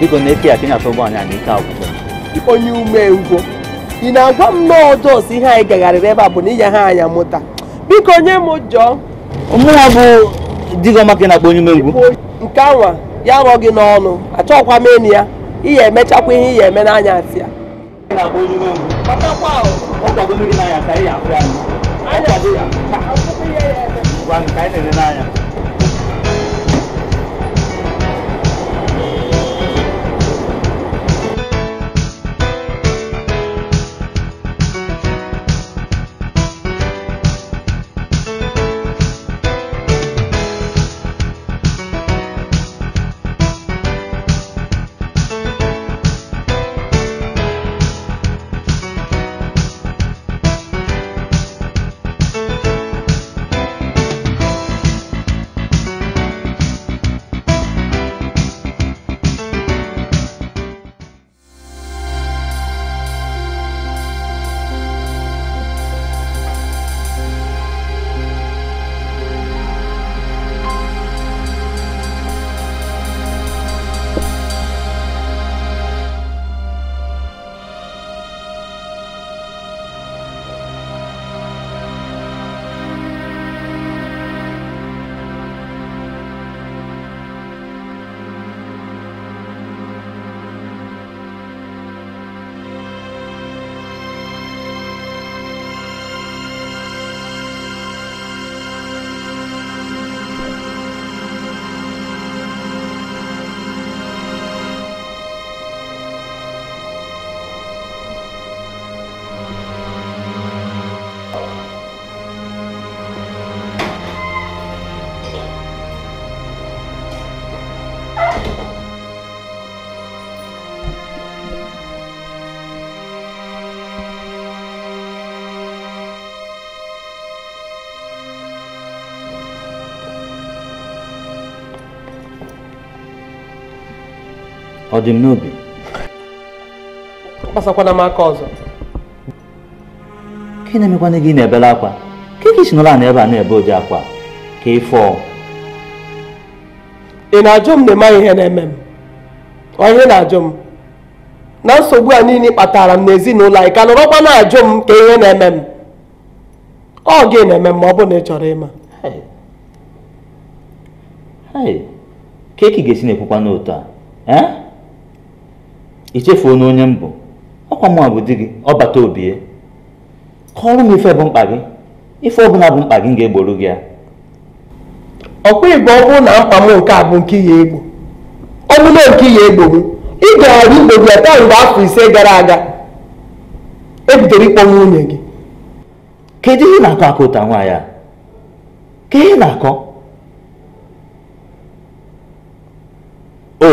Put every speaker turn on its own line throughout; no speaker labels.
biko na-eke ya ka ị na-achọ ụgbọ anyị nke agwụcha
onye umengwụ ị na-agwa m n'ọjọọ si ihe anyị gagharịrị ebe a bụ na ịnya ha anya mụta biko onye m jọọ mụnwa bụ digoma ka ị na-akpọ onye umengwụ nke anwa ya rọ gị n'ọnụ achọghịkwa m enu ya ị ya emechakwa ihe ị ya eme n'anya asị ya
ya ka ị anya ọ dị m n'obi
kpasakwana m aka ọzọ
ka na-emekwana gị na-ebele akwa ka ị chinọla na ebe a na-ebe ụdị akwa ka ị
ị na-ajụ m na ịmaghị ihe na-eme m ọ ihe na-ajụ m na nsogbu a niile kpatara m n'ezinụlọ anyị ka nọrọkwa na-ajụ m ka ihe na-eme m ọ gị na-eme m ma ọ bụ na ị chọrọ ịma
ka eki ga-esi na-ekwukwa n'otu a eh? ichefuo na onye mbụ ọkwa mụ bụ di gị ọbata obie kọọrọ m ife bụ mkpa gị ife ọbụla bụ mkpa gị ga-egboro gị ya ọkwa
igbo ọ bụrụ na mkpa m nke a bụ nke ya egbo ọ bụla nke ya egboro ị gaghara igbo gị ata mgbe afọ ise gara aga ebidoro ịkpọ nwunye gị
kedu ihe na-akọ akọ ụta nwaanyị a ka ihe na-akọ o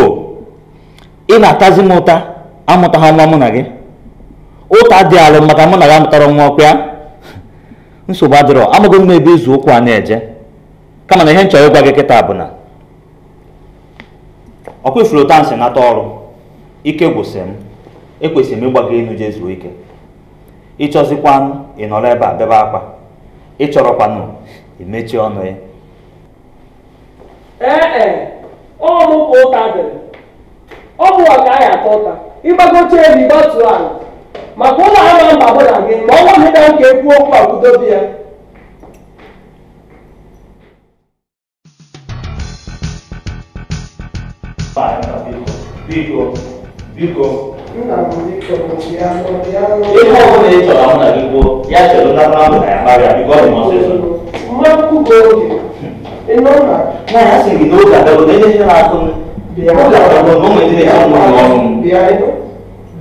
ị na-atazi m ụta amụtaghị nwa mụ na gị ụta dị maka mụ na gị amụtara nwa ya, nsogbu adịrọ amaghị m ebe izu ụkwụ a na-eje kama na ihe m chọrọ ịgwa gị kịta bụ na ọkwa ifuru ụta nsị nata ọrụ ike gwụsị m ekwesịrị m ịgba gị elu jee ike ịchọzikwanụ ị nọrọ ebe a bebe akwa ịchọrọkwanụ emechi ọnụ ya
ee ọ ka ụta dịrị ọ bụ ọga ya ata ụta ịgbago ebe gị gbatuo ala maka ụlọ ama mba mụ na gị ma ọ nwaghị na nke ekwu okwu akwudobe ya ihe ị chọrọ na gị ya ahụ na ya sị
ihe na m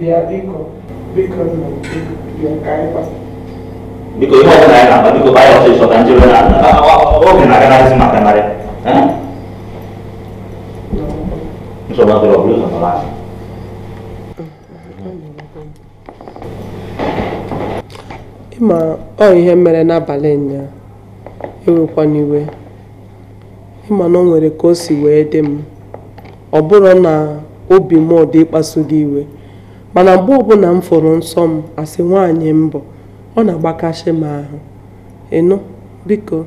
bịa biko biko nna biko bịa ka
biko ihe ọbụla anyị na-agba biko baa ya ọsịsọ ka njere na oge na-aganazi aga maka narị nsogbu adịrị ọbụla ụzọ nọrọ anyị
ịma ọ ihe mere n'abalị ụnyaa ewekwana iwe ịma na ọ nwere ka o si wee dị m ọ bụrụ na obi m ọ dị ịkpasu gị iwe mana mgbe ọbụla m fụrụ nsọ m asị nwaanyị mbụ ọ na-agbakasị m ahụ ịnụ biko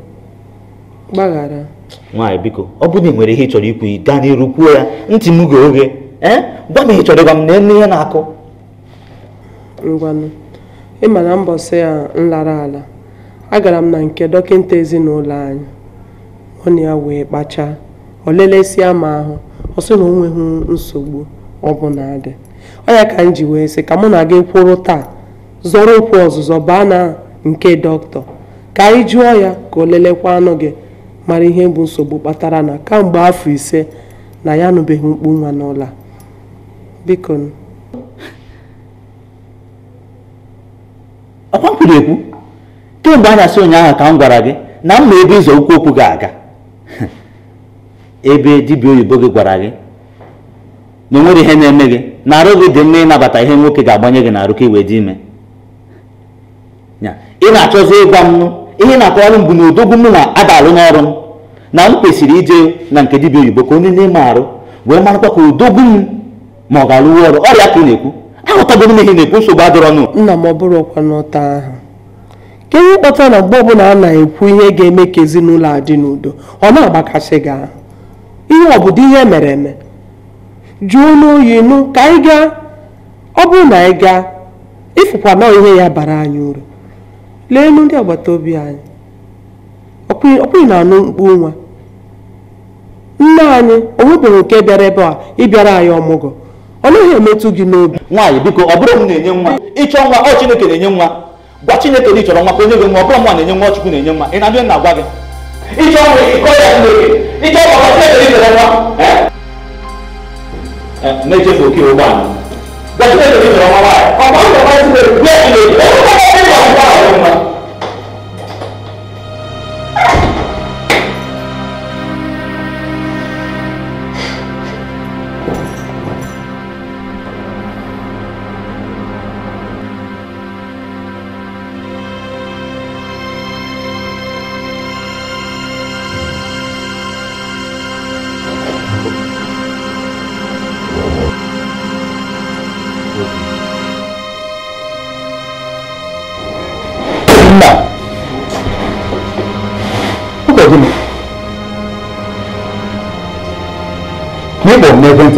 gbaghara
nwaanyị biko ọ bụrụ na ị nwere ihe ị chọrọ ikwu gaa n'iru kwuo ya ntị m ga oge ee gwa m ihe chọrọ ịgwa m na
enu ihe na-akụ ngwanụ ịma na mbọsị ya nlara ala agara m na nke dọkịta ezinụlọ anyị ọ na ya wee kpachaa o lelesịa m ahụ ọ sị na o nweghị nsogbu ọ na-adị. anya ka m ji wee sị ka mụ na gị kwụrụ taa zọrọ okwu ọzụzọ baa na nke dọkịta ka anyị jụọ ya ka o lelekwa anụ gị mara ihe bụ nsogbu kpatara na kamgbe afọ ise na ya anụbeghị mkpu nwa n'ụlọ a biko ọkwa kwuru ekwu
kemgbe na-asị ụnyaahụ ka m gwara gị na m ma ebe ịzọ ụkwụ okwu ga-aga ebe dibịa oyibo gị gwara gị na onwere ihe na-eme gị na arụ gị dị mma ịnabata ihe nwoke ga-agbanye gị n'arụ ka wee dị ime ị na-achọzi ịgwa m ihe na-akọwarụ m bụ na odogwu m na-adalụ n'ọrụ m na m kwesịrị ije na nke dibịa oyibo ka onye na-eme arụ wee marakwa ka odogwu m ma ọ ga-arụwa ọrụ ọrịa ka ị na-ekwu aghọtago m ihe na-ekwu nsogbu
adọrọ nụ nna m ọ bụrụ ọkwa n'ụta ahụ ka ihe na mgbe ọbụla a na-ekwu ihe ga-eme ka ezinụlọ a dị n'udo ọ na-agbakasị gị ahụ ihe ọ bụ dị ihe mere eme jụọ n'oyi nụ ka anyị gaa ọ bụrụ na anyị gaa ịfụkwa na ihe ya bara anyị uru lee enu ndị agbata obi anyị ọkwụghị na-anụ mkpu nwa nne anyị o nwebụghị nke bịara ebe a ịbịara anyị ọmụgwọ ọ naghị emetụ gị n'obi nwaanyị biko ọ bụrụ m na-enye nwa ịchọ nwa ọ chineke na-enye nwa gwa chineke na ị chọrọ nwa
ka onye gị nwa ọ bụrụ nwa na-enye nwa chukwu na-enye nwa ị na-abịa na-agwa gị
ịchọ nwa ịkọ ya chineke ịchọ nwa ka chineke nwa
哎，那就不去玩。那现在你怎么办？把房子卖出去，不要钱了，你还要钱了，你吗？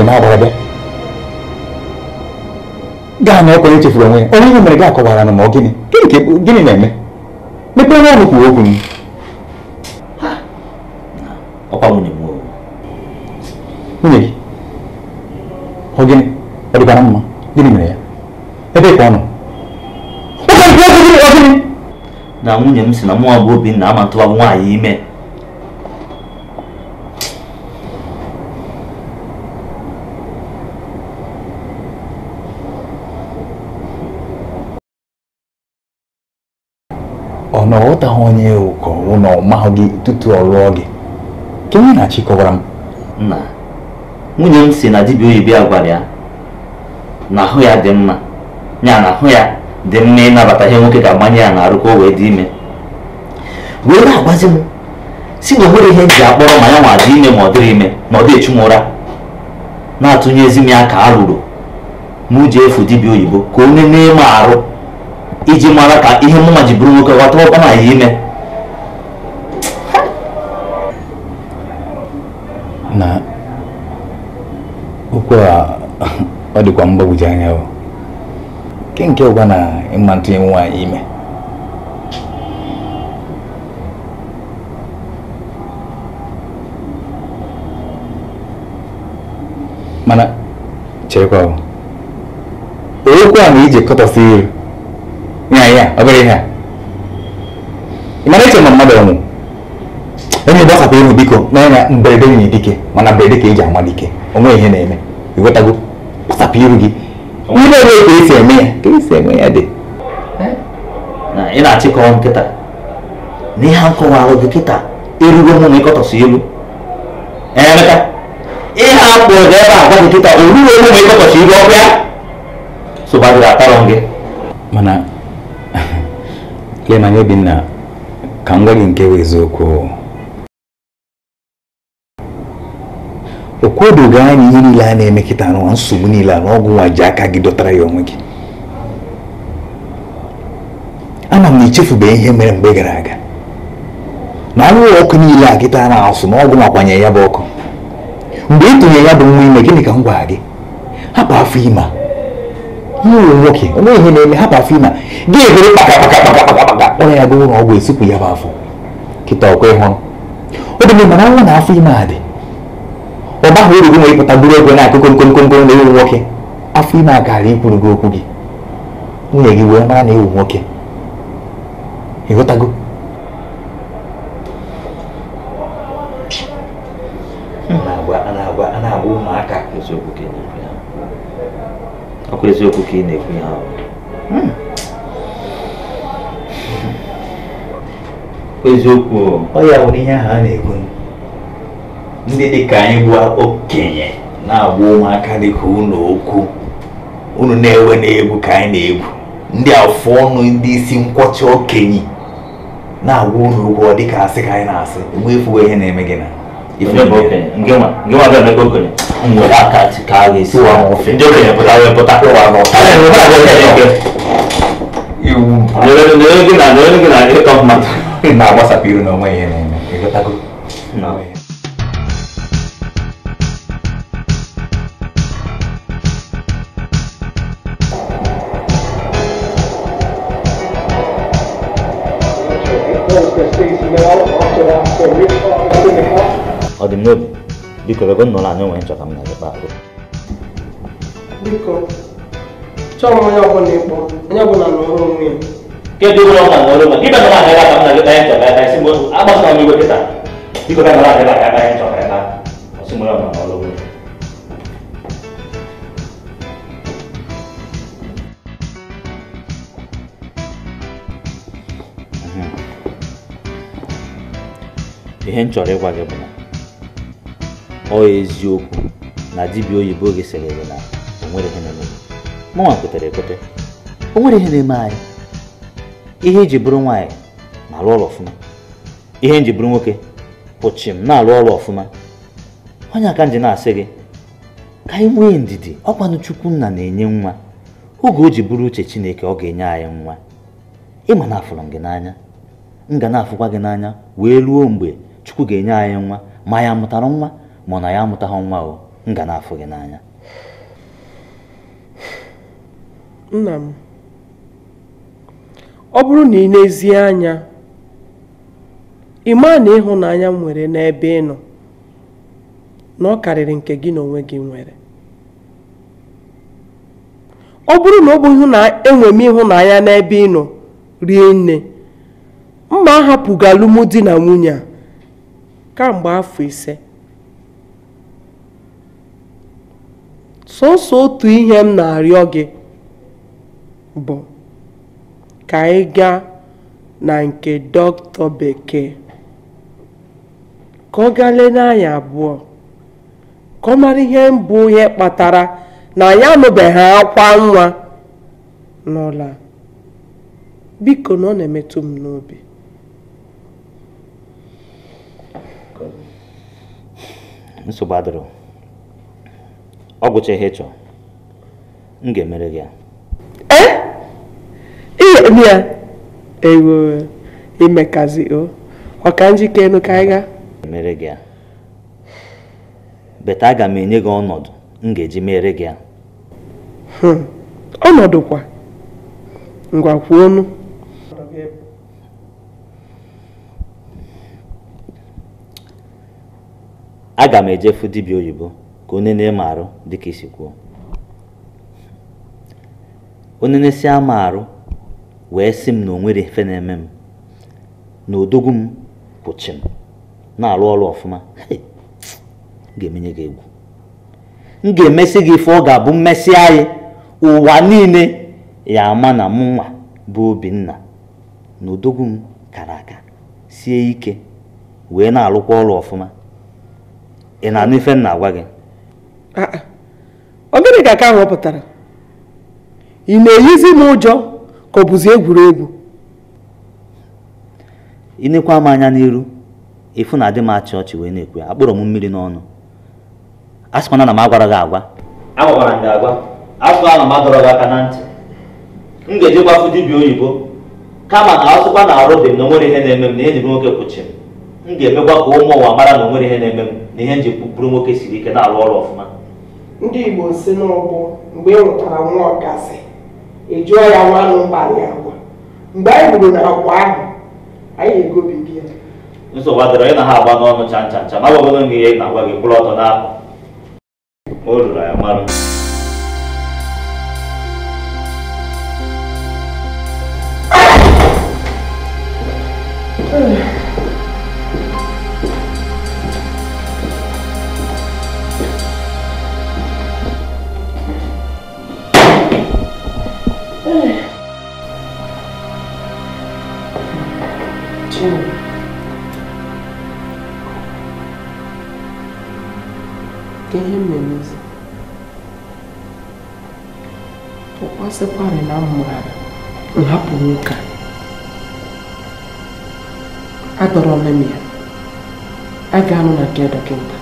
ma barabɛ gaa na ɔkɔne tefiri ɔmo yɛ ɔno yɛ mmerɛ gaa kɔwara no ma ɔgene gene ke gene na ɛmɛ mepɛ no ɔmo kuo ogun ɔpa mo ne mu o nwunye gi ɔgene ɔde ba na mma gene mmerɛ ya ɛbɛɛ kɔ ɔno
ɔkɔne kuo ogun ɔgene
na nwunye m si na mụ abụọ bi na amatụwa nwaanyị ime na ọghọtaghị onye ụkọrụ na gị tutu ọ lụọ gị ka na-achị m nna nwunye m si na dibịa oyibo ya gwara ya na ahụ ya dị mma ya na ahụ ya dị mma ịnabata ihe nwoke ga agbanye ya na-arụ ka o wee dị ime wee na-agbazi m si na o nwere ihe ji akpọrọ ma ya nwa dị ime ma ọ dịrị ime ma ọ dị echu ụra na-atụnyezi m ya ka a rụrụ ma ji efu dibịa oyibo ka o na-eme arụ iji mara ka ihe mụnwa ji bụrụ nwoke ghọta ọ na ya ime na okwu a ọ dịkwa mgbagwoju anya o nke nke ụgwa na ịma ntụnye nwaanyị ime mana chekwa o okwu a na ije kọtọsi iru nyaya obere ihe a ị mara eche ma mmadụ ọnwụ onye igbo akwapụ ihu biko n'ọnya mberede nwunye dike mana mberede ka eji ama dike onwe ihe na-eme ịghọtago kpasapụ iru gị ndị ebe ka esi eme ya ka esi eme ya dị ị na-achịkọwa nkịta na ihe a nkọwara gị kịta erugo mụ na ịkọtọsị ilu emeka ihe a kpụrụ ebe agwa gị kịta orugo mụ ma ịkọtọsị ilu ọbịa sogbadịrị atarọ gị mana ya na Obinna ka m gwa gị nke bụ eziokwu o kwedoghị anya ihe niile a na-eme kịta n'ụwa nsogbu niile a na ọgwụ nwa ji aka gị dọtara ya onwe gị ama m na ichefube ihe mere mgbe gara aga na anwụrụ ọkụ niile a gịta na-asụ na ọgwụ makwanye ya bụ ọkụ mgbe ị tụnyere ya bụ nwa ime gịnị ka m gwara gị hapụ afọ ime nwunye nwoke onye ihe na-eme hapụ afọ ịma gị ebere kpakakpakakpakpakpaka kpọrọ ya ga ụlọ ọgwụ esipụ ya bụ afọ kịta ọkwa ịhụrụ o dị mana nwa na afọ ime a dị ọ baghị uru gị nwere ịpụta buru ego na-akụkụ nkonkonko na ewu nwoke afọ ịma a ikwuru gị okwu gị nwunye gị wee mara na ewu nwoke ịghọtago ọkwa eziokwu ka ị na-ekwu ihe ahụ hmm. eziokwu ọ ya nwere ihe ahụ a na-ekwu ndị dị ka anyị bụ okenye na-agba ụmụaka dị ka ụnụ okwu unu na-ewe na-egwu ka anyị na-egwu ndị afọ ọnụ ndị isi nkwọcha okenye na-agwa unu ụgwọ dịka asị ka anyị na-asị mgbe efuwe ihe na-eme gị na ife nwere aka ka a ga-esi ofe ndị okenye pụta wee pụta iwu gị na gị na ịtọ mmadụ na-agbasapụ iru na onwe ihe na-eme ịgotago ọ dị m n'obi về con là, mà em được? Dico che non l'hanno mai giocato a me, parlo.
Dico, ciò non è buono, non è buono, non è Dia dulu lo nggak ngurung, dia
kan nggak hebat kamu lagi pengen coba, pengen simbol, apa sama minggu kita? Dia kan nggak hebat, pengen coba, kan? Semua lo nggak ngurung. thì hẹn trở lại qua cái bên này ọ eziokwu na dibịa oyibo gịsịrịrị na onwere ihe na-eme mụnwa kwetara ekwete o nwere ihe na-eme anyị ihe iji bụrụ nwaanyị na-alụ ọrụ ọfụma ihe nji bụrụ nwoke pụchi m na-alụ ọrụ ọfụma onye aka nji na-asị gị ka anyị nwee ndidi ọkwanụ chukwu nna na-enye nwa oge o ji bụrụ uche chineke ọ ga-enye anyị nwa ịma na afụrụ m gị n'anya m ga na-afụkwa gị n'anya wee ruo mgbe chukwu ga-enye anyị nwa ma ya mụtara nwa na ya amụtaghị nwa o m ga na-afụ gị n'anya
nna m ọ bụrụ na ị na-ezie anya ị maa na ịhụnanya nwere n'ebe ị nọ na ọ karịrị nke gị na onwe gị nwere ọ bụrụ na ọ bụ enwe m ịhụnanya n'ebe ị nọ rie nne mma ahapụghị alụmdi na nwunye a kamgbe afọ ise sọsọ otu ihe m na-arịọ gị bụ ka ị gaa na nke dọkịta bekee ka ọ gaa n'anya n'anya abụọ ka ọ mara ihe mbụ ihe kpatara na anyị anụbeghị akwa nwa n'ụlọ biko na ọ na-emetụ m n'obi
ọ gụcha ihe chọọ m ga-emere gị ya
ihe eh? ya ewo imekazi o ọ ka elu ka anyị ga
emere gị ya beta aga m enye gị ọnọdụ m ga-eji mere gị ya
hmm. ọnọdụ kwa ngwakwu ọnụ
aga m ejefu dibịa oyibo ka onye na-eme arụ dịka isi kwuo onye na-esi ama arụ wee sị m na o nwere efe na-eme m na odogwu m kwụchi m na-arụ ọrụ ọfụma ga-emenye gị egwu m ga-emesi gị ife ọ ga-abụ mmesi anyị ụwa niile ya ama na mụ nwa bụ Obinna na odogwu m kara aka sie ike wee na-arụkwa ọrụ ọfụma ị na-anụ ife m na-agwa gị
o ah, ah. ka ka aka ahụ ọ pụtara ị na-eyizi m ụjọ ka ọ bụzi egwuregwu
ịnekwa m anya n'iru ịfụ na adị m achị ọchị wee na-ekwe akpọrọ m mmiri n'ọnụ a sịkwana na m agwara gị agwa agwara m gị agwa afọ ahụ m adọrọ gị aka na ntị m ga-eji gbafu dibịa oyibo kama na asụkwa na arụ dị m na onwere ihe na-eme m na ihe ji nwoke kwụchi m m ga-emekwa ka ụmụ ụwa mara na onwere ihe na-eme m na ihe m ji bụrụ nwoke siri ike na-arụ ọrụ ọfụma
ndị igbo si n'ụbụ mgbe ị e nwụtara nwa ọkasị ịjụọ e ya nwanụ mbalị agwa mgbe anyị gburu na agwa ahụ anyị egobibi ya
nsogbu adịrọ ị na ha agba n'ọnụ chanchancha ma ncha n'agbagodo ihe ị na-agwa gị kwụrụ ọtọ n'apụ o ruru ya marụ
sịkwarị na mmụghara nhapụ nwoke a adọrọ m ya a ga-anụ na nke dọkịta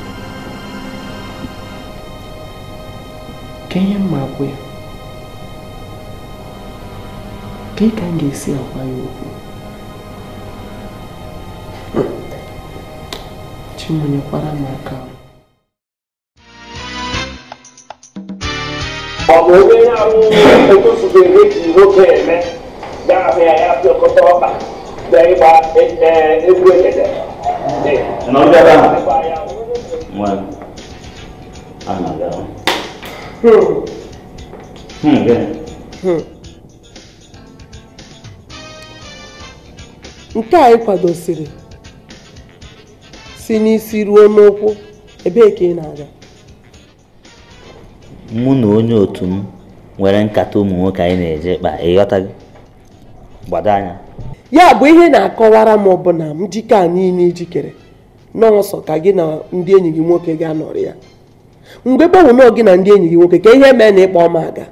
ka ihe mma gwụ ya ka ị ka m ga-esi agwa ya okwu chimonyekwara m aka
ọ bụ onye otosufe eji nwoke eme gafe ya ya fi ọkọta ọkpa bịa ịgba egwu egede nke
anyị kwadosiri si n'isi ruo n'ụkwụ ebee ka ị na-aga
mụ na onye otu m nwere nkata ụmụ nwoke anyị na-eje kpa gị gbado anya
ya bụ ihe na-akọwara m bụ na m jike a niile ijikere n'ọsọ ka gị na ndị enyi gị nwoke gị anọrị ya mgbe gbanwe gị na ndị enyi gị nwoke ka ihe mee na ịkpa ọma aga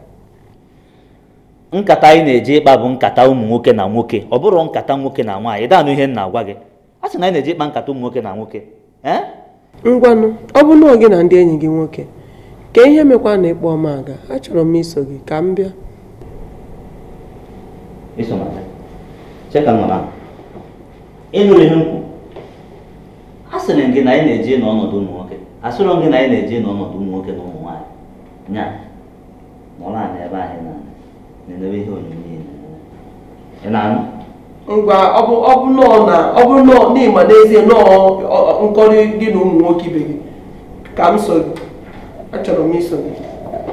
nkata anyị na-eje ịkpa bụ nkata ụmụ nwoke na nwoke ọ bụrụ nkata nwoke na nwaanyị daanụ ihe m na-agwa gị a sị na anyị na-eje ịkpa nkata ụmụ nwoke na nwoke
eh? ngwanụ ọ bụ na gị na ndị enyi gị nwoke ka ihe mekwa na ịkpọ m aga achọrọ m iso gị ka m bịa
ịnụrụ ihe nkwu a sịrị gị na anyị na eji n'ọnọdụ ụmụ nwoke asịrọ gị na anyị na eji n'ọnọdụ ụmụ nwoke na ụmụ nwaanyị nya nọrọ anyị ebe anyị na-enebe ihe onyonyo ị na-anụ
ngwa ọ bụ nọọ na ọ bụ n'ezie nọọ nkọrị gị na ụmụ nwoke ibe gị ka m so gị achọrọ m isonye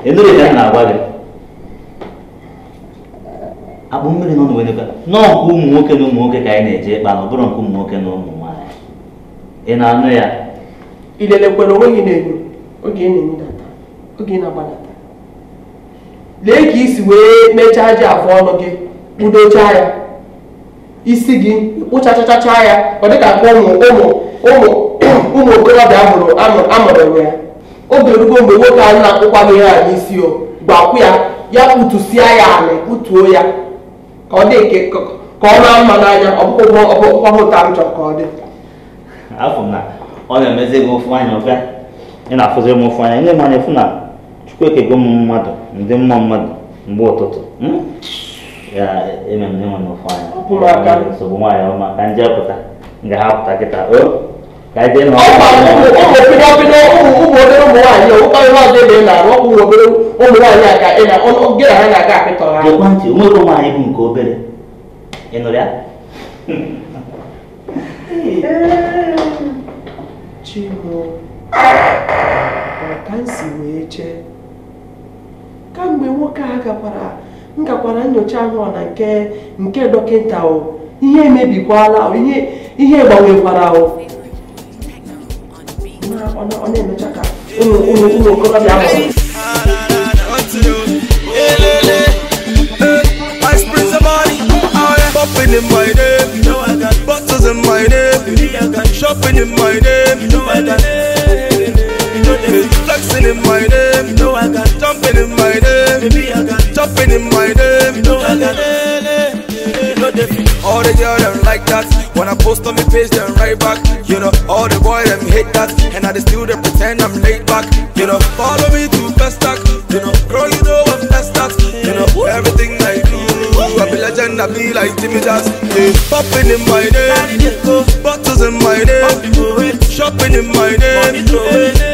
emereka m na-agwa gị
akpụ mmiri nọ n'Oweneka nọọ nke ụmụ nwoke na ụmụ nwoke ka anyị na-eje ịkpa na ọ bụrụ nke ụmụ nwoke na ụmụ nwaanyị ị na-anụ ya
ilelekwere onwe gị na-enyo oge ị na-emedata oge ị na-agbanata lee ka isi wee mechaa ji afọ ọnụ gị kpudochaa ya isi gị kpụchachachacha ya ọ dịka ụmụ ụmụ ụmụ ụmụ okorobịa amụrụ amụrụ ya oge rugo mgbe nwoke ahụ na-akwụkwa m ihe a n'isi o gbakwụ ya ya kpụtụsịa ya anị kputuo ya ka ọ dị ka ọ na mma n'anya ọkpụkpọhụta m chọrọ ka ọ dị
afọ na ọ na-emezi gị ofu anya ọbịa ị na-afụzi m ofu anya ndị manya efu na chukwu ekego m mmadụ ndị mma mmadụ mgbe ụtụtụ hmm? ya eme m ndị nwere ofu anya nsogbu nwaanyị ọma ka nje pụta nga ha pụta kịta o ka ụmụbido
bido ụmụ obere ụmụ nwaanyị ụkọrị ọzọ ebe ị na-arụ ọkụ ụmụ obere ụmụ nwaanyị aka ị na gị na ha na aga akpịtọ ha ntị, ekwentị
nwere nwaanyị bụ nke obere ị nụrụ ya
chimo ọka nsi wee chee kamgbe nwoke a gakwara ngakwara nyocha ahụ na nke nke dọkịta ihe emebikwala ihe ihe gbanwekwara ahụ ọ na-emecha ka ụmụ ụmụ okorobịa ahụ
Shopping in my name, you know I got bottles in my name. You know I got shopping in my name, you know I got flexing in my name, you know I got jumping in my name, baby I got jumping in my name, you know I got all the girls like that post on me page, then right back. You know, all the boys them hate that, and I just still they pretend I'm laid back. You know, follow me to Festac. You know, girl, you know I'm that's that. You know, everything I do, I be legend, I be like Jimmy Jazz. Hey, popping in my name, bottles in my name, shopping in my name.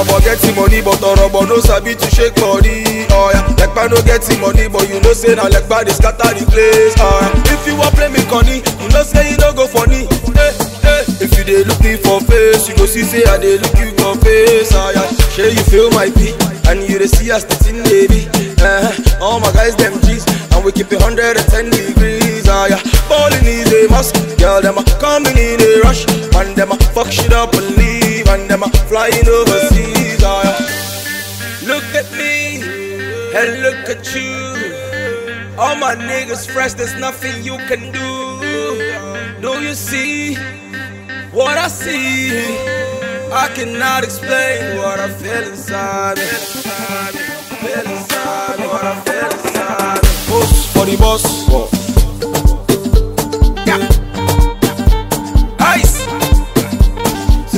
I'ma get money but i no sabi to shake body oh Like I no get money but you know say na lekpa dey scatter the place oh if you wan play me conny you know say you no go funny eh, eh. if you dey look me for face you go see say i dey look you for face oya oh shey you feel my pain and you dey see as the thing dey be uh-huh. all my guys dem g's and we keep it hundred and ten degrees oya falling is a must girl dem a coming in a rush and dem a fuck shit up and leave and them a flying overseas. Oh, yeah. Look at me and look at you. All my niggas fresh, there's nothing you can do. Do you see what I see? I cannot explain what I feel inside me. Feel inside what I feel inside Oops, for the boss.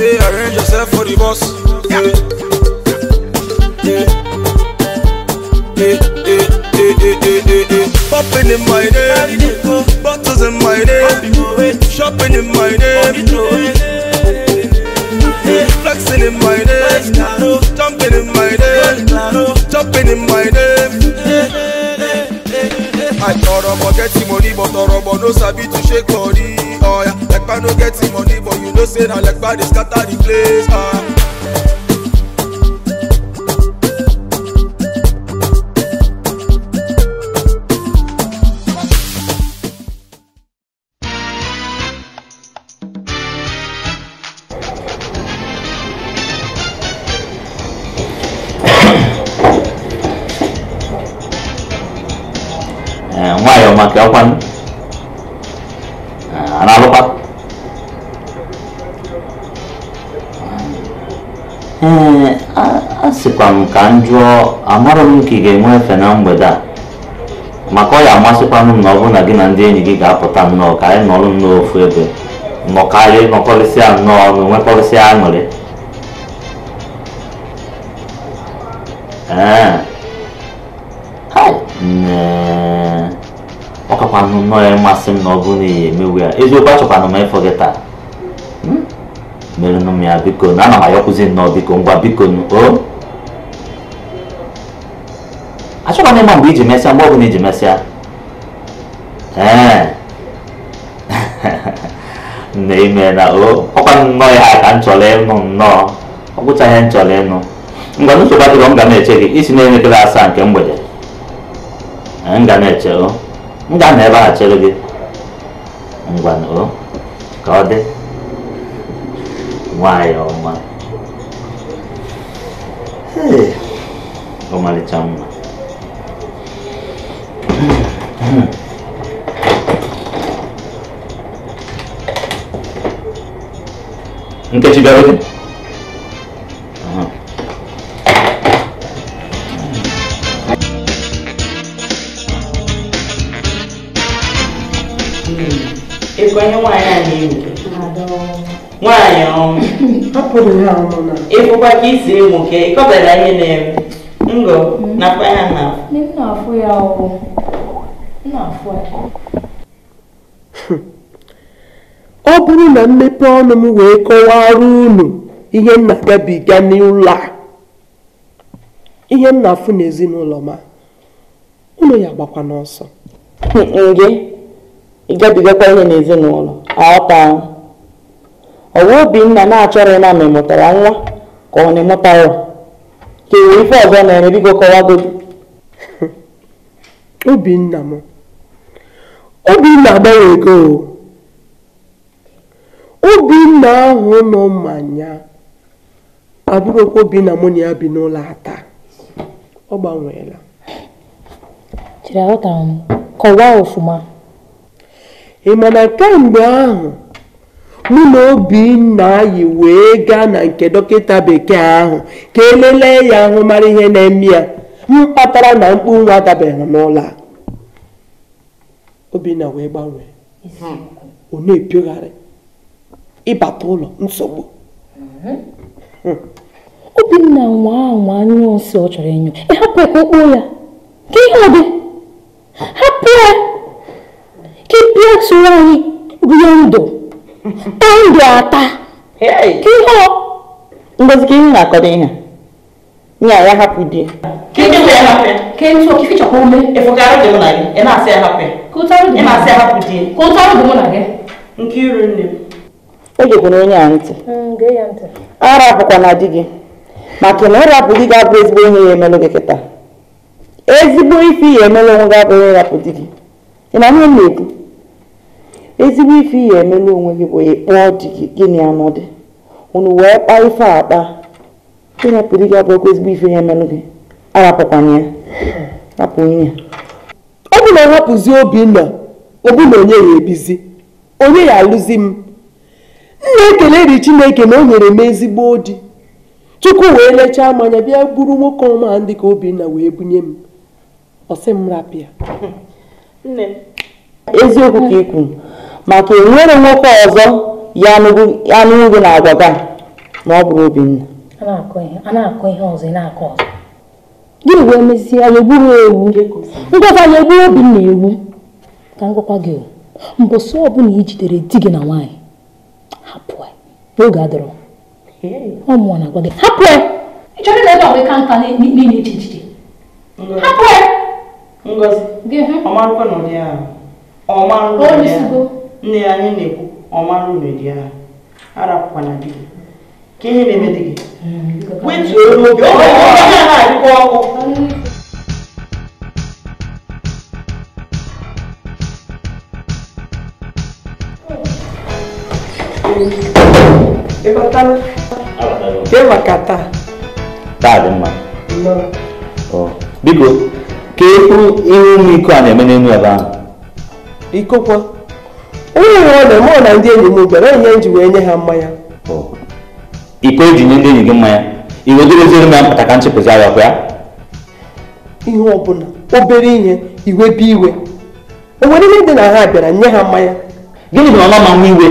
say arrange yourself for the boss. Popping in my name, bottles in my name, shopping in my name, flexing in my name, jumping in my name, jumping in my name. I tọrọ but get money, but tọrọ but no sabi to shake body. Oh yeah, like I no get money, know say na legba dey scatter the place. Ah.
m ka m amarọ m ka ị ga-enwe efe na mgbede a maka ọ ya amasịkwanụ m na ọ bụrụ na gị na ndị enyi gị ga-apụta nnọọ ka anyị nọrọ nnọọ ofu ebe nọkarị nọkọrịsịa nnọọ ọnụ nwekọrịsịa aṅụrị ee ọ kakwanụ nnọọ ya mmasị m na ọ bụrụ na ihe emewu ya eziokwu achọkwanụ m ịfọ gị taa hmm? merenụ m ya biko na ana m ayọkwụzi nnọọ biko ngwa biko o 우리 집에서 먹으니 집에서 에 내면아 어 혹은 뭐야 안 졸래노 너 혹은 자연 졸래노 이거는 소바도 건강에 제기 이스네는 클라스 안 경보제 안 가네 저 nga na-ebe ha chere gị ngwanụ ka ọ dị nwanyị ọma ọmalịcha mma Em không? Nkechi bịara oge
ịkwanye nwaanyị Em na-ewu nwaanyị ọnwụ ịfụkwa ka có ewu là ịkọbara ihe na-eme ngọ nakwa ya na
afụ ya ọgwụ
ọ bụrụ na mmepe ọnụ m wee kọwara unu ihe m na-agabiga n'ụlọ a ihe m na-afụ n'ezinụlọ ma ụlọ ya gbakwa n'ọsọ
gị ịgabigakwa ihe n'ezinụlọ aghọta ọ bụ nna na-achọrọ na ma nwa ka ọ na-emụtara emụta
ka enwere ife ọzọ na-eme bigo kọwagodi Obinna m obinna ego obinna ahụ nọ mmanya abụrụkwa obinna mụ na ya bi n'ụlọ ata ọ gbanweela chere m kọwaa ọfụma ị ma na kemgbe ahụ mụ na obinna anyị wee gaa na nke dọkịta bekee ahụ ka elelee ya ahụ mara ihe na-eme ya m kpatara na mkpu nwa dabere n'ụlọ a obinna wee gbanwee ọ hmm. na-epiogharị ịbata ụlọ nsogbu mhm. hmm. obinna
nwa nwa anyụ nsị ọ chọrọ enyo ịhapụ ya ya ka ihe ọ dị hapụ ya ka ịpịa tụrụ anyị rie ndụ
taa ndụ ata ka ihe ọ ngozi ka ihe na-akọdo ihe ya ya hapụ di
hape. Ken so kificha ko me. E fokaro
na se hape.
Ko taro de. E na e se hapu di. Ko taro de mona ge. Nkiru nne.
O je gono nya anti. Mm, ge ya Ara bukwa e na di gị Maka na ora bu di ga bu ezigbo ihe ya gị geketa. Ezigbo ife e ya emelo onwe gị bu ya bu di gị Ị na ihe na-ekwu? Ezigbo ife ya emelo onwe gị bụ ịkpọ di gị gịnị anụ dị. Unu wee kpaa ife akpa. Ịrapụ di
gị abụ ezigbo ife ya emelụ gị. arapụkwana ọ bụ na ọ hapụzi Obinna ọ bụ na onye ya ebizi onye ya alụzi m nna ekele ri Chineke na o nyere m ezigbo di Chukwu wee lechaa mmanya bịa gburu nwoke ọma ndị ka Obinna wee bunye m ọsị m rapịa eziokwu ka ị maka enwere nwoke ọzọ
ya anụghị na agwaga ma ọ bụrụ Obinna
a na-akọ ihe ọzọ gịnị wee mezie anyị egburu ewu
ngwakwa anyị egburu
obi na ewu ka ngwakwa gị mbọsị ọbụla i jidere di gị na nwaanyị
hapụ n'oge adọrọ ọ mụọ na-agwa gị hapụ ya ịchọrọ na ebe
ya anyị na-ekwu ọmarụ
arapụkwana di gị kini mitiki witu olóògbé ọmọ ìwé ní àná àdúgbò ọkọ. kemaka
taa dị mma oh. biko ka ekwu ihu ụmụ iko a na-eme n'elu ebe ahụ
ikokwa onye nwe ọ na-eme ọ na ndị enyi m gbere onye m wee nye ha mmanya
oh. ikpe eji nye ndị enyi gị mmanya iwedoreziere m ya mpụta ka nchepụzi ọkụ ya
ihe ọbụla obere ihe iwe bụ iwe o nwere ihe dị na ha bịara nye ha mmanya gịnị bụ na ọma manwe iwe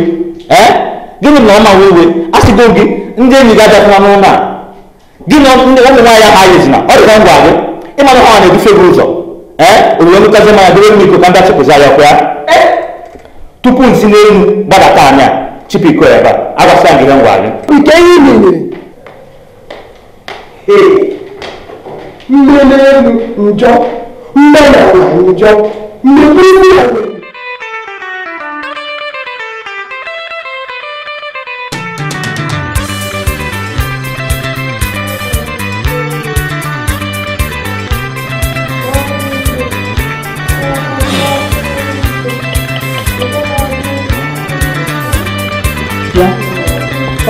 ee gịnị bụ na ọma manwe iwe a sịgo gị ndị enyi gị abịakwana n'ụlọ a gị na
ụmụ nwaanyị ahụ anyezina ọ dịka ngwa gị ịmana ha na-edufe gị ụzọ ee orire nụkazi mmanya dịre m iko ka ndị achịpụzi ayakwa ya tupu nsi n'elu gbadata anya cipi ko ba aka sa gidan gwari
non yi ne eh mmele elu njọ mmele ala njọ mmele elu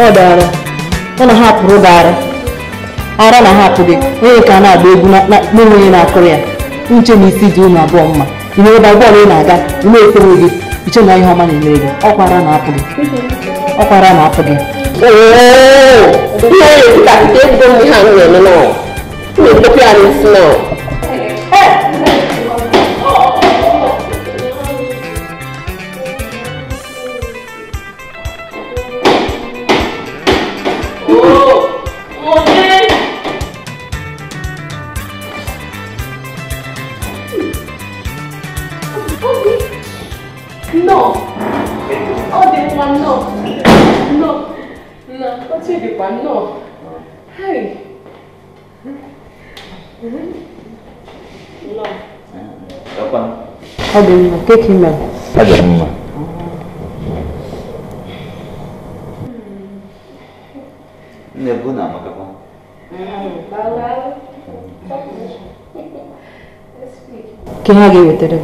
ọ dara ọ na ha hapụrụ gị ara na ahapụ gị onye ka a na-agba egwu n'enweghị na-akụrụ ya nche na isi dị ụmụ abụọ mma ị ebe bọọlụ ị na-aga ime ekpere gị iche na ihe ọma na-emere gị ọkwara
na-apụ gị na-apụ gị
거야?
다들 몇개 길면?
다들 정말. 근데 그건 안 먹어봐.
¿Quién aquí v i t e r e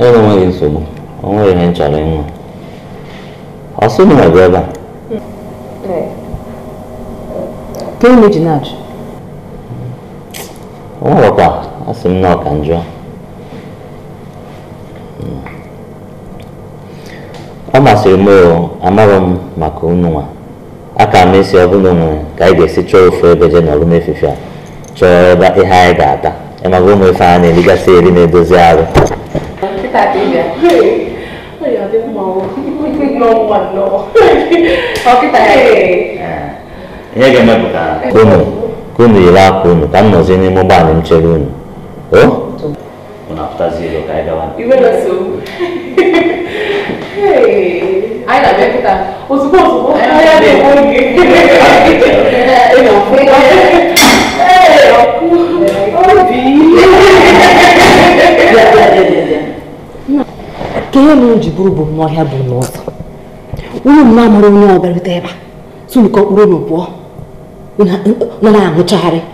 Él no me hizo, no. Vamos a ir en chaleno. Así no me acuerdo.
¿Qué es mi dinero?
Vamos a papá. asị m nọ ka njọ ọ masịrị m o amaghị m maka unu nwa aka m esi ọbụla nwere ka ị ga-esi chọọ ebe nọrụ a chọọ ebe ihe anyị ga-ata ịmaga na-erigasị eri na-edozi arụ
ihe yiri
akwa unu ka m n'ime unu Oh? Unafuta zero kaida wapi?
Iwe so. Hey. Ai la bẹ kuta. Òṣùpá òṣùpá. Ẹ yá dé wọ́n yé. Ẹ nà fún yá. Ẹ ọkú. Obi.
Ka ihe na ji bụrụ bụ n'ọhịa bụ o Unu m na-amụrụ onye ọ bịarute ebe a. Sunu ka ọ kpụrụ n'ụbụọ. Unu na-aṅụchagharị.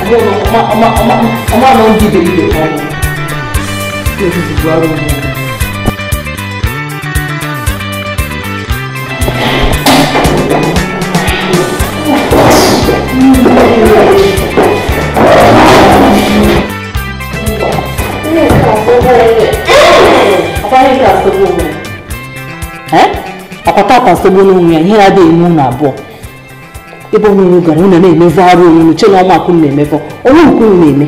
ọmọ ọmọ ọmọ ọmọ ọmọ àná ń dìde ìdè kan ní kí o sì ti gbọ́ àrùn mi. ọkọta kan sogbo n'onwe ya ihe ya adịghị iwu na abụọ ebe ọnụnụ gara ụnụ na-emezi arụ onunu che na ọmakụ na-emefọ onye nke unu na-eme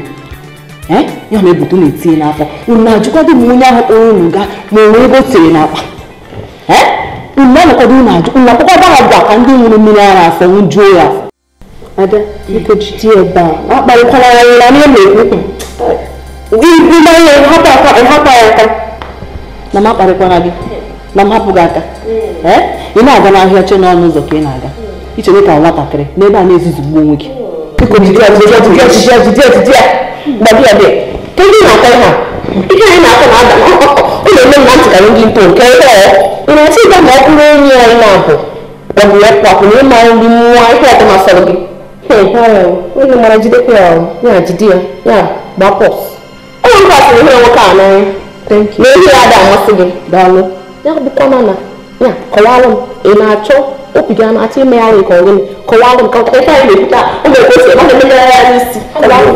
ya ma ebute unu etinye n'afọ unu na-ajụkwado m onye ahụ kpọrọ unu gaa ma o nwee ebe o tere n'akpa unu anọkwado unu ajụ unu akpọkọba ha gwa ka ndị nwụrụ mmiri ara afọ njuo ya afọ ada biko ebe a akparịkwala ya nwụra na na-ekwu
hmm, ịgba ya ịhapụ aka ịhapụ ya aka
na m akparịkwara gị na m hapụ gị aka ị na-aga n'ahịa che n'ọnụ ụzọ ka ị na-aga iche ka nwatakịrị n'ebe a na gbuo onwe gị
kedu na-ata ihe a ike anyị na-ata na ụlọ eme mma ntị karị ndị mkpo nke ịrasị ịga ma ọ bụrụ onye ọrụ na-abụ ọbụ ya kwapụ na ịma nri nwa ihe ọtọ masịrị gị onye mara jidekwa ya ya jide ya ya gbapọ ụlọ nkwasịrị ihe nwoke a n'anya na ihe ya ada amasị gị daalụ ya bụkwa mana ya m ị na-achọ obi gị na-achọ ime ya nwe ka m ka na-ekwuta ọ na mechie gị n'ebe ahụ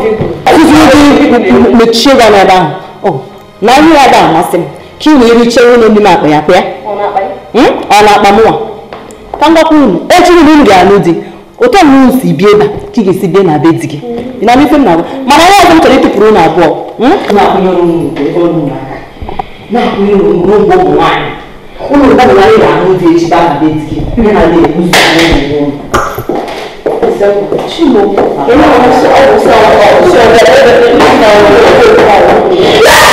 na ihe ya ga amasị m ka ị na-ericha nwunye ndị na-akpa ya kpịa ọ na-akpa mụwa ka ngwakwa unu echi unu m ga di otu si bie na be mana ọzọ m chọrọ ịtụpụrụ na 我们家那边的牛，就是把那边的牛拿来，我们自己弄。这个，你弄不好。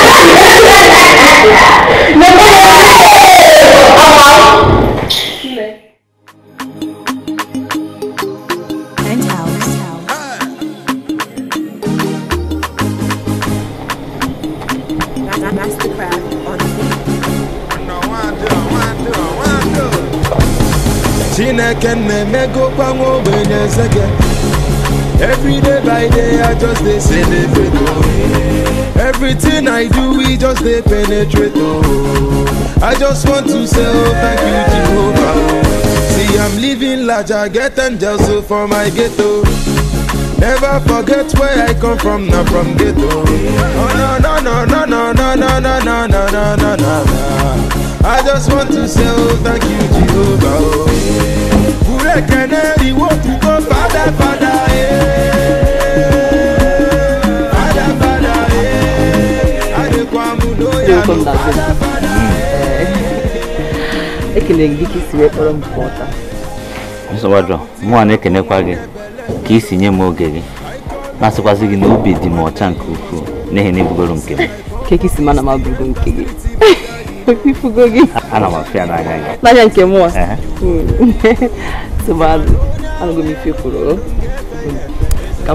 they celebrate oh. Everything I do, we just they penetrate oh. I just want to say oh, thank you Jehovah See I'm living large, I get angels for my ghetto Never forget where I come from, not from ghetto Oh no no no no no no no no no no no no no I just want to say oh, thank you Jehovah oh. Kule keneri wo kuko fada fada eh
na eh, ekelere gị ka isi wee kpọrọ
na-ekenekwa gị ka isi nye m oge gị na-asịkwasị gị na obi dị m ọcha nke ukwuu n'ihi na nke m
ka si mana m abụgo nke gị ifugo gị
ana m afịa n'anya gị n'anya nke
ka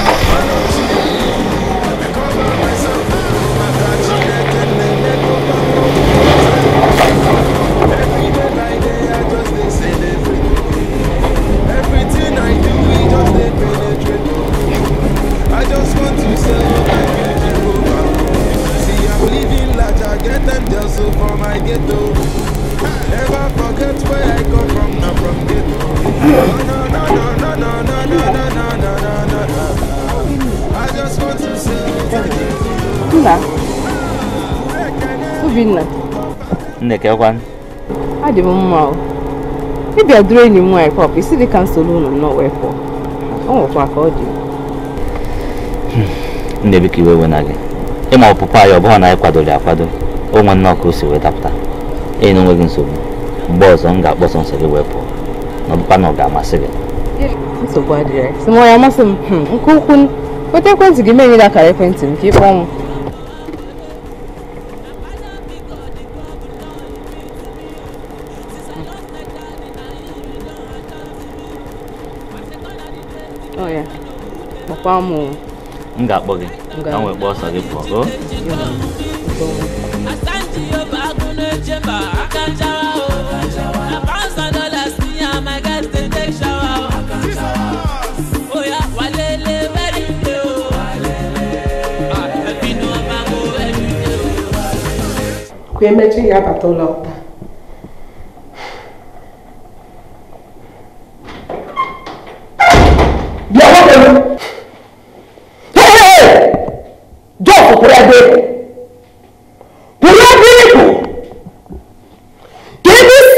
ekekwanụ adị m mma ịbịa
duru enyi m nwaanyị
pọp isi dị ka nsogbu ụlọ m wee pụọ ọ nwekwa ka ọ dị
hmm, nne ka iwe wena gị ịma ọpụpụ anyị ọ bụghị na anyị kwadoro akwado onwe nnọọ ka o si wee dapụta enyi na onweghị nsogbu mgbe ọzọ m ga-akpọsọ nsọ gị wee pụọ na ọbụkwa na ọ ga-amasị gị
nsogbu adịghị sị m ọ ya amasị m hmm, nke ukwuu weta ekwentị gị mee nyere akara ekwentị m ka ịkpọọ m
pam
m ga-akpọ gị ka m wee kpọọ ọsọ gị pụọ
ka emechi ya bata ụlọ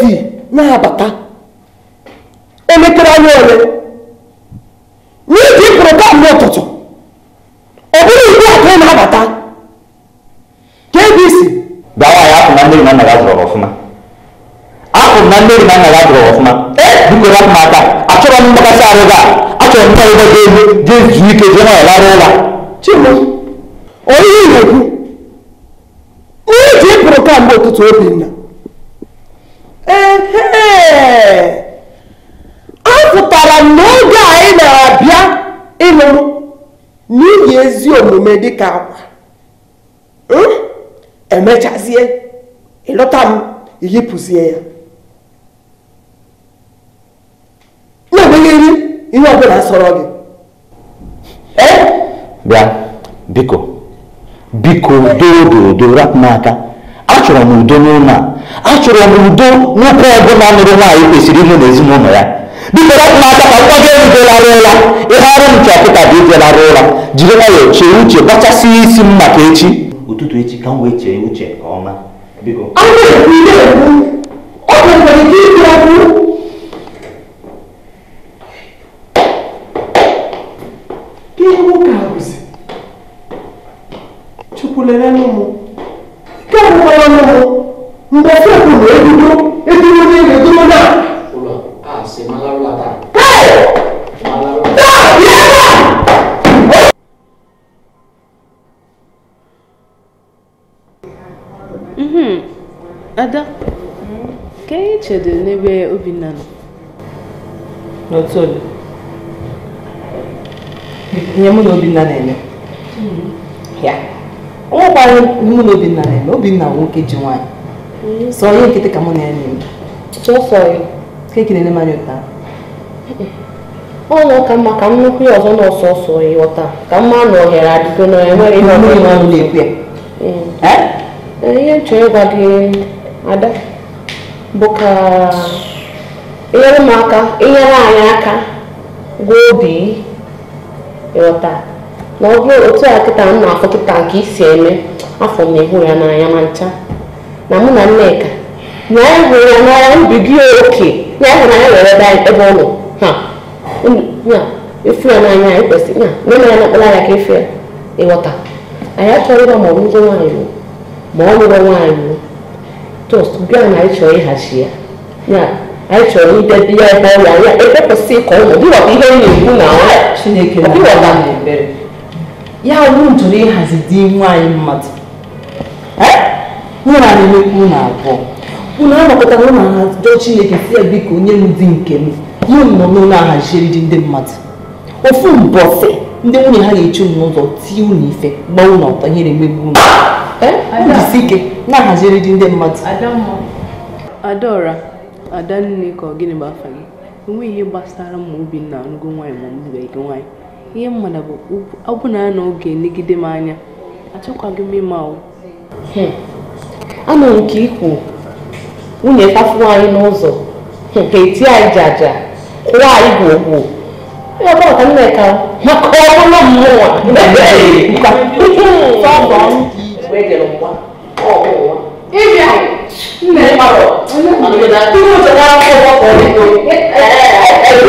si na-abata elekere anya ole n'iji pụrụ n'ụtụtụ ọ bụrụ ugbu a ka ị na-abata ka ebe isi ya
na na ya ọfụma Akụ na ọfụma e, m
aka achọrọ m mgbakasị a achọrọ m nwa ebe elu jee ike jee larụ
chimo onye na-ekwu pụrụ taa ụtụtụ obi nna ezi omume ka akwa hmm? emechazie ịlọta m iyipụzie ya na iri ihe ọbụla sọrọ gị
e? bịa biko biko dodo odo n'aka achọrọ m udo n'ụlọ a achọrọ m udo nwoke ọbụla nụrụ nwaanyị kwesịrị ịnụ n'ezinụlọ ya biko na-aka ka nwa gị erubela rụla ihe arụ ncha kịta bụ ijela rụla jiri nwayọọ chee uche gbachasị isi m maka echi ụtụtụ echi ka m wee chee uche nke ọma biko
Chukwulere n'ụmụ
n'ebe Obinna nọ
n'otu ole ihe mụ na Obinna na-eme hmm. ya o nwekwara mụ na Obinna na-eme Obinna nwoke ji nwaanyị hmm. sọ ihe nkịtị ka mụ na ya na-eme keki na-enye m anya ụta
ọ nọ ka mma ka nnukwu nụkwu ya ọzọ na ọsọsọ ịghọta ka mma na ohere adịgo na enweghị ihe ọ na-ekwu ya hmm. eh? Eh, ihe nchọ ịgwa gị ada bụ ka inyere ụmụaka inyere anyị aka gwa obi ịghọta na ọ bụrụ otu a kịta m na-afụ kịta nke isi eme afọ na-ehu ya n'anya ma ncha na mụ na nneka na anyị e hụrụ ya n'anya mbibi oke na e anyị hụrụ anya were ebe ọ nọ ha ya efu ya n'anya anyị kwesịrị na nne ya na-akpọrọ ya ka efu ya ịghọta anyị achọrọ ịba ma ọ bụ rụgo nwaanyị ma ọ lụrụ nwaanyị tost nke a na anyị ịhachi ya ya anyị chọrọ idebe ya ebe ọrịa ya ekwepụsị ka ụmụ dịwọkwa ihe ị na-ekwu na Chineke na-ebere
ya bụ njụrụ ịhazi di nwaanyị mmadụ nwere anyị na-ekwu unu abụọ unu anọkọtara ụlọ ha jụọ Chineke si ya biko onye m di nke m mụ nọ n'ụlọ ahaziri dị ndị mmadụ ofu mbọsị ndị nwunye ha na eche unu n'ụzọ tie unu ife gbaa unu ọtọ ihe na-emegbu unu jisi ike na-ahaziri dị ndị mmadụ
adaora nne ka ọ gịnị bụ afa gị enweghị
ihe gbasara ma obinna anụgo nwaanyị ma mgbebeghị gị nwaanyị ihe mmadụ bụ ọbụna ya na oge negide m anya achọkwaghị m ịma ahụ anọ nke
ikwu nwunye tafuo anyị n'ụzọ nke eti anyị ji aja kụwa anyị gwogwo ebe ọka nneka maka ọbụla mmụọ bẹ́ẹ̀dẹ̀ lọ wá ọ̀ọ́ wá. ibi à ńlẹ̀ pàrọ̀ àgbẹ̀dà tí mo ti dá ọkọ̀ ọkọ̀ rẹ̀ kò ẹ̀ ẹ̀ ẹ̀ ẹ̀ ẹ̀ ẹ̀ ẹ̀ ẹ̀ ẹ̀ ẹ̀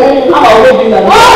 ẹ̀ ẹ̀ ẹ̀ ẹ̀ ẹ̀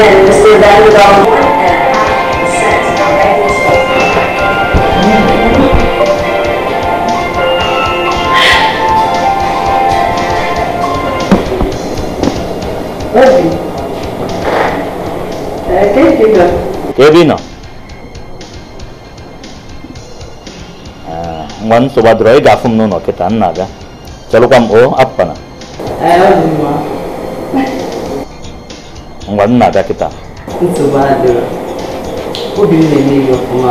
in just the value of one and a cent of every space. ये भी ना मन सुबह रोई गाफुम नो नोके तान नागा चलो कम ओ अप पना nna ada kịta
na eme ihe ọfụma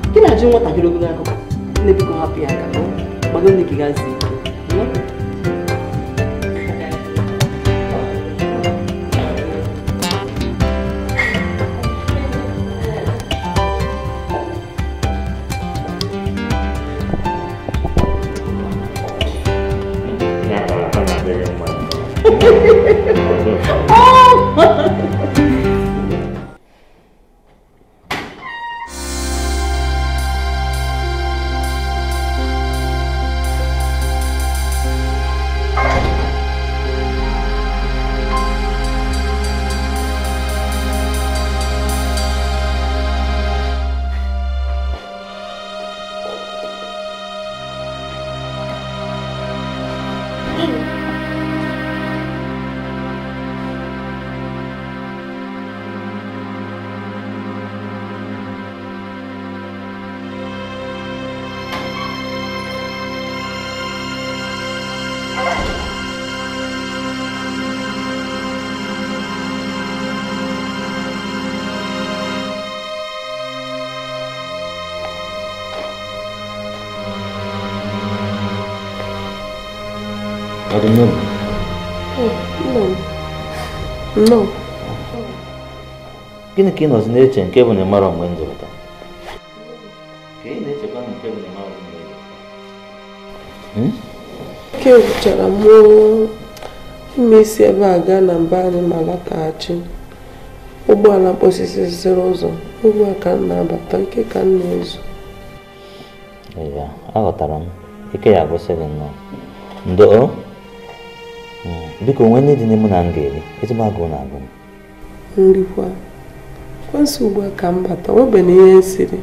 na-ajụ nwatakịrị ogologo akụkọ nne biko hapụ ya aka gbado nne gị gazie
No.
Gịnị ka ị nọzi na-eche nke bụ na ịmara mgbe m zụta? Ka ị nke bụ na ịmara mgbe m
Ke chọrọ mụọ ime isi ebe a gaa na mba anyị ma lataghachi. Ụgbọala mkposisi ziri ụzọ ugbu a ka m na-abata nke ka m na-ezu.
Ee, aghọtara m. Ike ya agwụsịghị nnọọ. Ndo. biko onwe nne dị n'ime na m ga-eri ezigbo agụụ na-agụ m
nrikwa kwesị ugbu ka m bata webe na ihe siri.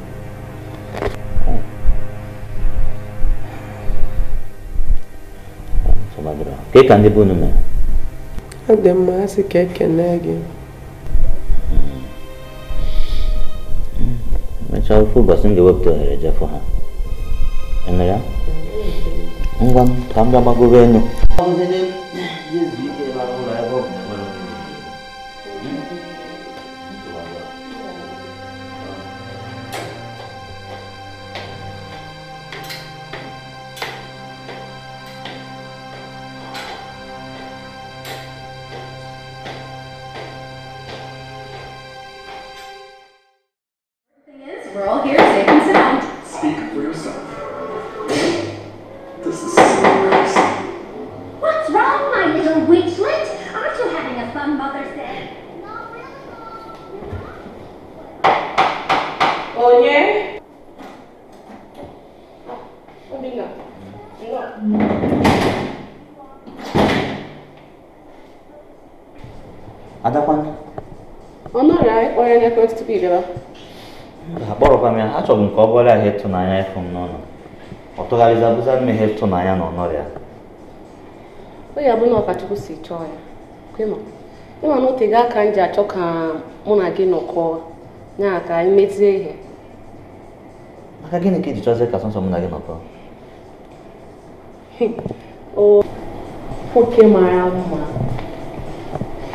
ka ka ndị be unu mere
ọ dị mma ha sị ka ekene gị hmm.
mechaa ofe ụbọchị m ga-ewepụta ohere jefụ ha eme ya ngwa m ka m bịa gbagobe e exige akpọrọkwa m ya achọrọ m ka ọ bụrụ ahịa ịtụnanya ịfụ m n'ụlọ ọ tụgharịzi abụza ihe ịtụnanya na ọnọrọ ya
onye abụọ na ọkachukwu si chọọ ya ịma na ote aka m ji achọ ka mụ na gị nọkọọ ya ka anyị mezie ihe maka
gịnị ka chọzie ka mụ na gị nọkọọ
o nwoke mara mma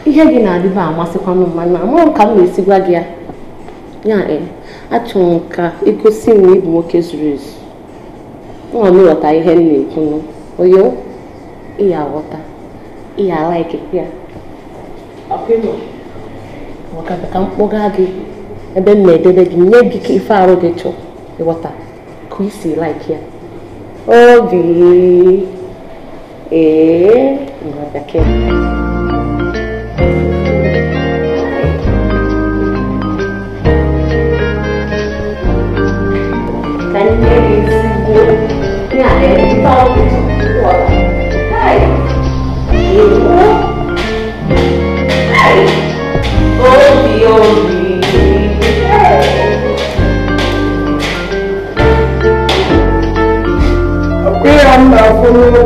ihe gị na-adịba amasịkwanụ mma na ka m na-esi gị ya ya e achọrọ nka igosi m na ịbụ nwoke zuru ezu nwa m ịghọta ihe m na-ekwu onye ịya aghọta ịya alaiki ya maka ka m kpọga gị ebe m na-edebe gị nye gị ka ife arụ gị chọọ ịghọta ka isi laiki ya obi ee nwa bekee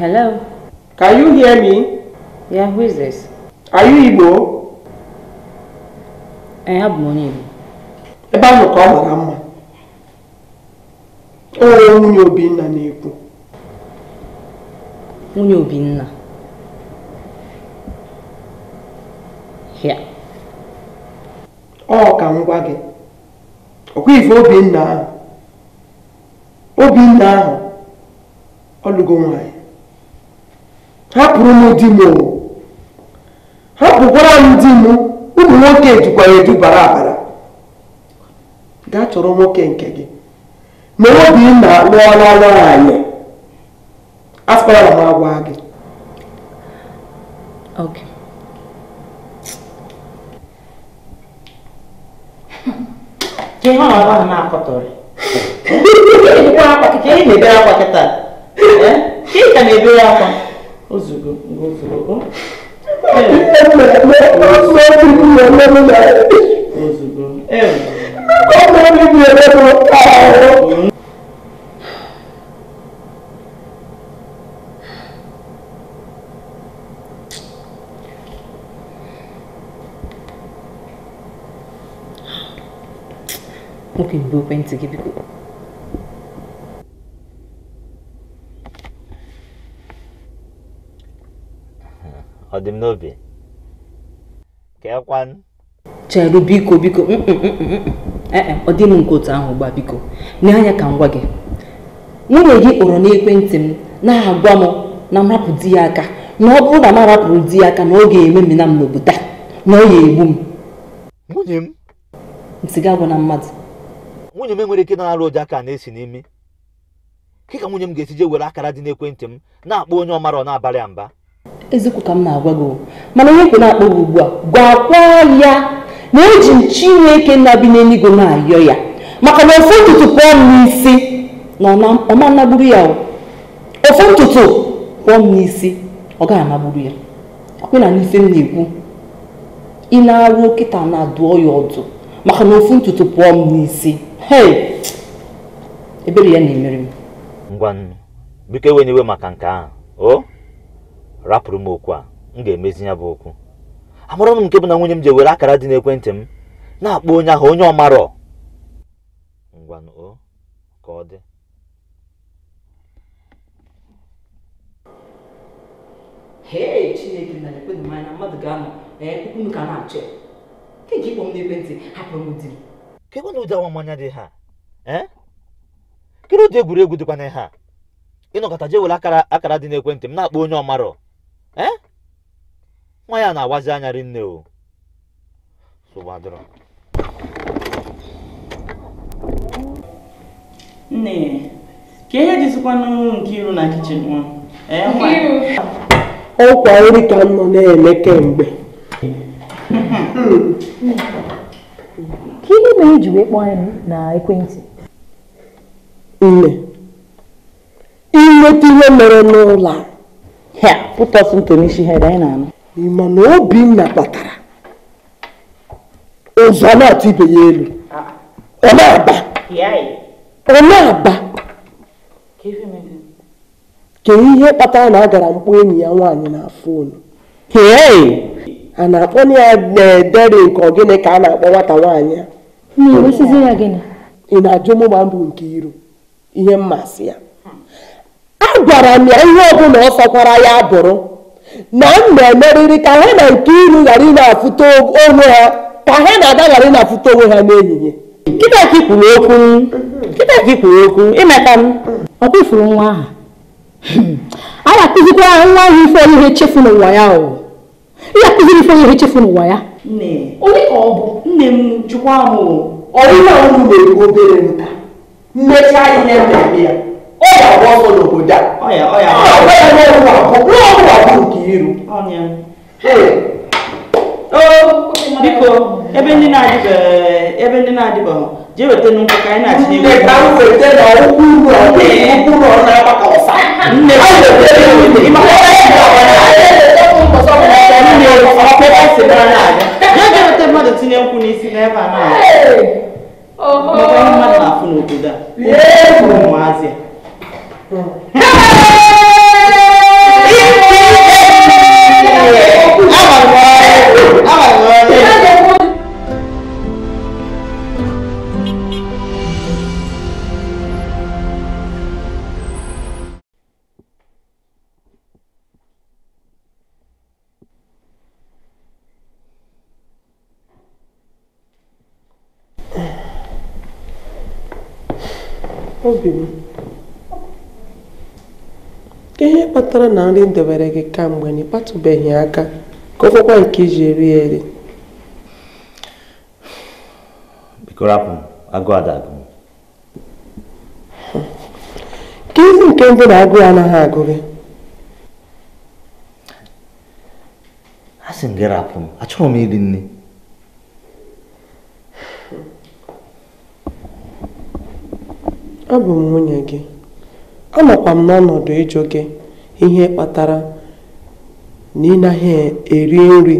Hello? Can you hear me? Yeah, who is this? Are you Igbo?
I have money. Ebe ahụ ka ọ mara mma. O nwunye Obinna na-ekwu.
Nwunye Obinna.
Ya. Ọ ka ngwa gi gị. Ọkwa ife Obinna ahụ. Obinna ahụ ọ lụgo nwaanyị. hapụrụ m di m hapụkwara m di m ụmụ nwoke ejikwa ya edubara abara gaa chọrọ nwoke nke gị ma Obinna lụọla nwaanyị afọra m agwa gị
agwa
Ị na-ebere akwa kịta? ozugo ngo ozugo ozugo ewu Okay, go paint to give you.
ọ dị m n'obi keekwanụ
cheru biko biko mm, mm, mm, eh, eh, ọ dị m nke otu ahụ gbaa biko nye anya ka m gwa gị nwunye gị kpọrọ n'ekwentị m na-agwa m na mrapụ di ya aka na ọ bụrụ na m arapụrụ di ya aka na ọ ga-eme mmena m n'obodo na ọ ga-egbu m nwunye m ntị ga na mmadụ
nwunye m enwere ike na-arụ ụjọ aka na-esi n'imi ka nwunye m ga esije were akara dị n'ekwentị m na-akpọ onye ọ mara ọ na-abalị mba
eziokwu ka m na-agwa gị mana onye kwe na-akpọ gị ugbu a gwakwa ya na eji m chineke na-abi n'eluigwe na-ayọ ya maka na ofe ntutu pụọ m n'isi na ọma anagburu ya ofe ntutu pụọ m n'isi ọ gaghị anagburu ya akwena n'ife m na-ekwu ị na-arụ kịta na-adụọ ya ọdụ maka na ofu ntutu pụọ m n'isi ebere ya na-emere m
ngwa nnu biko ewenyewe maka nke ahụ rapụrụ m okwu a m ga-emezi ya bụ okwu amụrụ m nke bụ na nwunye m ji were akara dị n'ekwentị m na-akpọ onye ahụ onye ọmarọ ngwanụ o ka ọ dị
ee chineke na ekwenụ m anya mmadụ ga-anọ unu ka
na-achọ nke ji ịkpọ m n'ekwentị hapụrụ m di m kekwana ụdị awamanya dị ha e? kedu ụdị egwuregwu dịkwana ha ịnọkọta je were akara akara dị n'ekwentị m na-akpọ onye ọmarọ ee nwa ya na-agbazi anya rinne o sogbadoro
nne ka ihe jisikwa n'ụlọ nke iru na kichin nwa
ọkwa nri ka m nọ na-eme kemgbe ka ihe mere iji wee kpọọ anyị na ekwentị nne inweta ihe mere n'ụlọ a put us ha anyị na-anụ ịma na Obinna kpatara ụzọ na-atụ ibe ya elu ọ na-aba ọ na-aba kedu ihe kpatara na a gara mkpọ enyi ya nwaanyị na fon a na-akpọ ya na-edere nke gịnị ka a na-akpọ nwata nwaanyị ya ị na-ajụ mụ gbaa mbụ nke iro ihe mmasị ya agwara m ya ihe ọbụla ọ fakwara ya bụrụ na m na-emerịrị ka ha na nke iru ghara ịna na-afụta
onwe ha ka ha na-ada ghara ịna afụta onwe ha n'ehihie nwa ahụ a na-akụzikwa nwa ahụ ife ihe chefu n'ụwa ya ị akụziri ife ihe chefu n'ụwa ya ka ọ bụ nne m ọ
obere nta ihe ya ọ ga-agba n'obodo
a biko ebe ndị na-adịbeghị ebe ndị na-adịbeghị jee weta nnukwu ka anyị na-achị nne ka m jee
weta mmadụ tinye nkwụ n'isi n'ebe a na-abịa mmadụ na-afụ n'obodo a
obìnrin ihe kpatara na nri debere gị kamgbe na ịkpatụbeghị aka ka ọ nke iji eri eri ka ezi nke ndị na-agụ ya anaghị agụ gị
a m m achọghị iri nne
abụ m nwunye gị anọkwa m n'ọnọdụ ịjụ gị ihe kpatara na ị naghị eri nri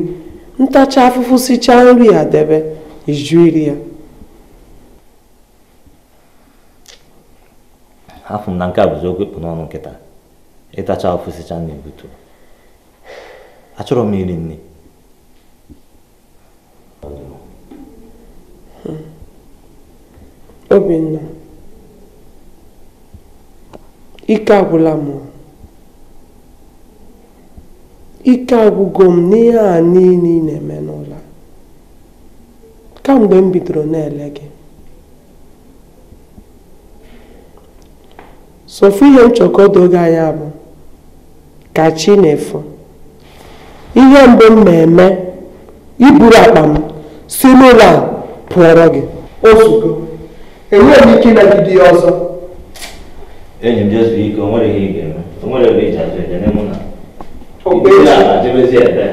ntacha afụfụ sichaa nri a debe iju iri ya
afụ m na nke a bụzi okwu ịkpụ n'ọnụ nkịta ịtacha afụfụ sichaa na-ebutu achọrọ m iri nri
hmm. obinna ike agwụla m ike agwụgo m n'ihe a niile ị na-eme n'ụlọ kamgbe m bidoro na-ele gị sofu ihe nchọkọdo gị anya bụ kachi na-efu ihe mbụ m na-eme iburu akpa m si n'ụlọ a pụọrọ gị o enweghị m ike ịnagide ọzọ
enyi m jezu ike o nwere ihe ike ga-eme o nwere ebe iji azụ ejene mụ na ebe ala jebezi ebe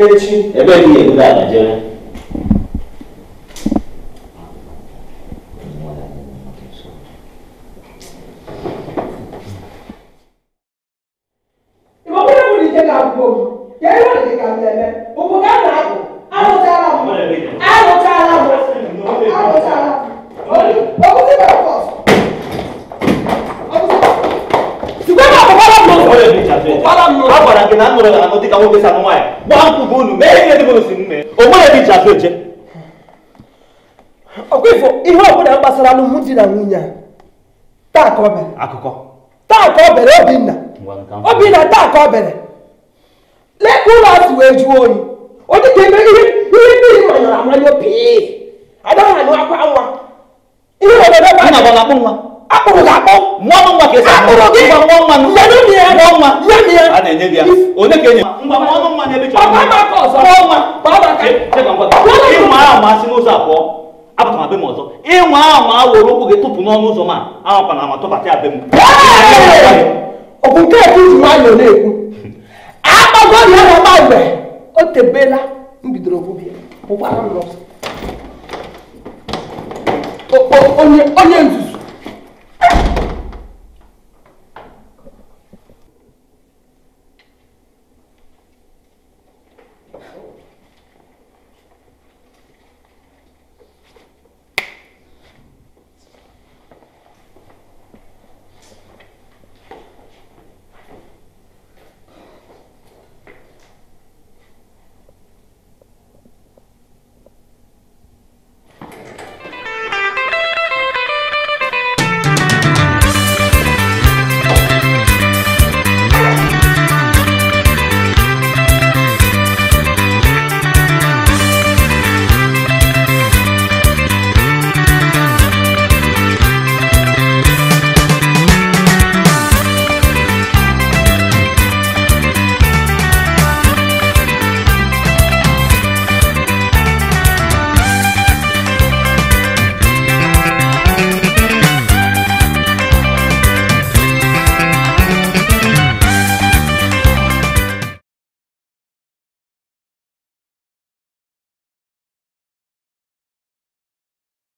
echi ebe gị ala jere
di na a taa ka ọ bere akụkọ taa ka ọ bere obinna taa ka bere ụlọ wee jụọ oyi eme ihe ihe nwa ihe obere nwa akpụrụ ya
na a apụtara abe m ọzọ ịnwa ahụ awụrụ ụkwụ gị tụpụ n'ọnụ ụzọ ma ahụkwana ama tụbatị abe m
ọbụ nke ekwu ji nwayọọ na-ekwu akpagoro ya na mgbe o tebela m bidoro ogbubia ụkwara m ọzọ onye nzuzu